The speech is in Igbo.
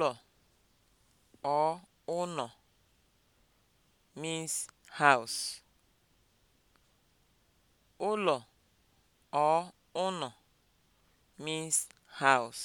Ụlọ or ụnọ means house. means house.